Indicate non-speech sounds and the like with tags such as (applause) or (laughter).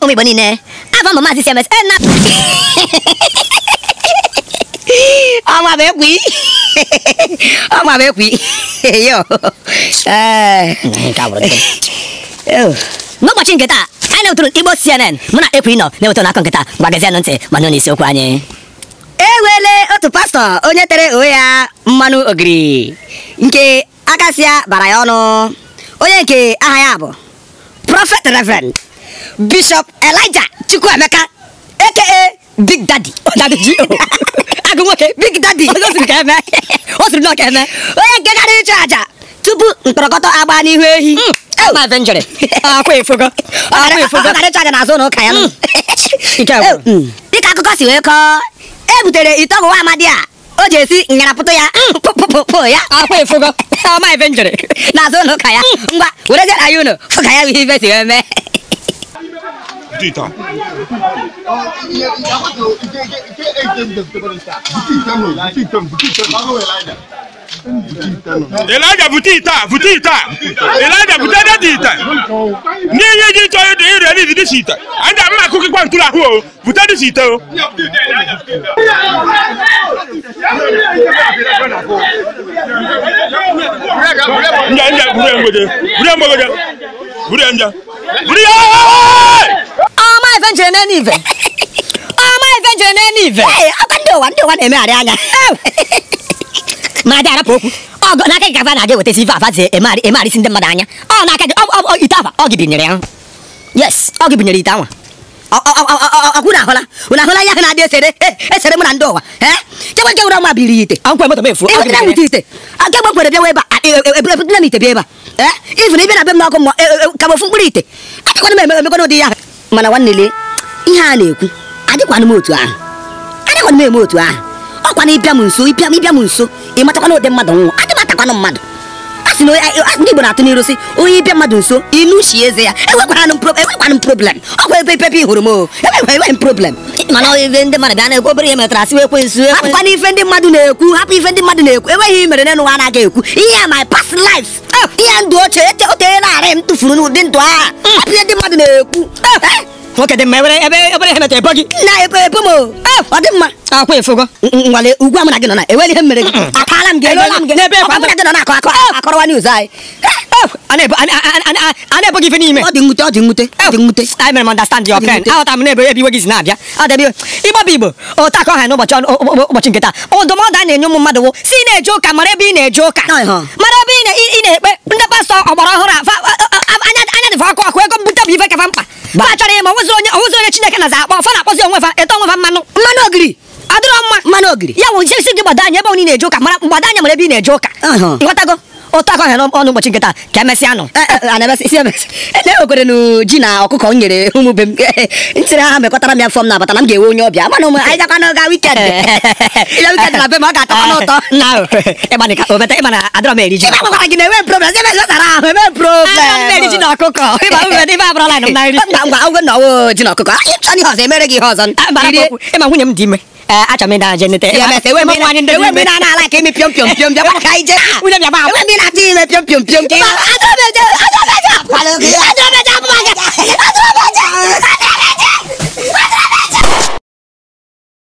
ụmụ Igbo niile abụ mbụ maazị cms na ọnwa bụ ekwi ọnwa bụ ekwi yo n'ụbọchị nke taa anyị na-ewetụrụ Igbo CNN mụ na ekwi nọ na-ewetụrụ n'akọ nke taa gbagazianụ ntị ma nụ n'isiokwu anyị enwele otu pastọ onye tere onwe ya mmanụ ogiri nke akasịa bara ya ọnụ onye nke aha ya bụ prọfet reverend bishop elijah chukwuemeka aka big daddy oh, oh. (laughs) agụ nwoke big daddy o siri ka eme (laughs) o siri ka eme onye nke gara aja tupu mkpọrọkọtọ agba n'ihu ehi dịka akụkọ si wee kọọ e butere ite ọgwụ amadi a o ji esi nyarapụtụ ya pụpụpụ hmm. ya (laughs) n'azụ ụlọ ụka ya hmm. ngwa wereziara ya unu ụka ya bụ si wee mee dita elija bute ite a bute ite a elija bute data ite n'ihe iji chọrọ ịdị dị n'izi si ite anyị ga-ama akụkọ kwa ntụrụ ahụ o bute si ite o nja nja buru mgbede buru mgbede buru nja buru ya ife njere n'enu ive ọma na njere n'enu ndị ụwa ndị ụwa na-emegharị anya (laughs) ma dị arapụ okwu ọgọ n'aka gị gava na-aga ewetazi eme ala isi ndị mmadụ anya ọ n'aka gị ite afa ọ gị binyere ya yes ọ gị binyere ite ahụla ahụla ahụ na-adị esere e, esere na ndị ụwa e? chekwa nke wụrụ ma biri ite akwụkwọ moto m efu ewetara ite nke gbe kwere a e, ebudere m ite bịa ebe a ifu na ibe na be m n'ọkụ mmụọ ka mkpụrụ ite akakwana m emekwana mana nwanne lee ihe a na-ekwu adịkwana m otu ahụ adịkwana m eme otu ahụ ọkwa na ịbịa m nso ịbịa m ịbịa m nso ịmatakwana ụdị mmadụ nwụọ adị m atakwana mmadụ a sị na ndị Igbo na-atụ n'iru sị onye ịbịa mmadụ nso inu shi eze ya enwekwana m enwekwana m problem ọkwa ebe ebe ịhụrụ m o enweghị m problem mana ife ndị mmadụ bịa na-ekwu obere ihe metara asị ekwe nso hapụkwana ife ndị mmadụ na-ekwu hapụ ife ndị mmadụ na-ekwu enweghị ihe mere n'ụwa anaghị ekwu ihe my past life ihe ndụ ochie e otere narị m tụfuru n'ụdị ndụ agha hmm. ihe ndị mmadụ na-ekwu eh! Eh! nwoke dị mma ebere ebere e ihe metara ebo gị na ebo ebo m eh! ọ dị mma akwa efogo nwale ugwu amụna gị nọ na enwere ihe mere gị akaala m gị elola m gị n'ebe ekwa amụna gị nọ na akọ akọrọwa news anyị na ebo gị ife n'ime ọ dị nwute ọ dị nwute ọ dị nwute understand your pain. aghọta m n'ebe ebe iwe gị si na-abịa adịbị ịgbaba igbo otu akọ ha n'ụbọchị ụbọchị nke taa ndụmọdụ a na-enye ụmụ mmadụ si na-eje ụka mara ebe ị na-eje ụka mara ebe ị na-ekpe ndị pastọ ọgbara ọhụrụ anya dịfa ọkụ ọkụ ego mbute bụ ife kafa mkpa fa chọrọ ịma onwezi onye onwezi onye chineke na za akpọ na-akpọzi onwe fa eto onwe fa mmanụ mmanụ ogiri adịrọ mma mmanụ ogiri ya gị gbado anya ebe onye na-eje ụka mara mgbado anya mara ebe na-eje ụka ụtọ aka ọhịa ọnụ ụbọchị nkịta ka emesịa nụ na-enwekwere nụ ji na ọkụkọ m nyere ụmụ be m ntịrị ha mekọtara m ya fọm na-abata na m ga ewe onye ọbịa mana ụmụ anyị n'oge wikend na be m ọ ga n'ụtọ ịgbanika obeta ịgbana na-enwe problem ebe ahụ problem eriji na ọkụkọ ebe na nri ngwa ngwa na ọwụ ji na ọkụkọ ịchọ ihe ọzọ emere gị ihe ọzọ ịma nwunye m dị ime acha menda jene te ya se we mena ni we mena na la ke mi pyom pyom pyom ja ba kai je we na ba we mena ti me pyom pyom pyom ti acha me acha me